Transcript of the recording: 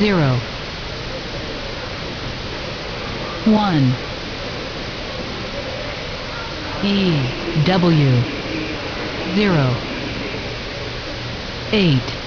zero one E W zero eight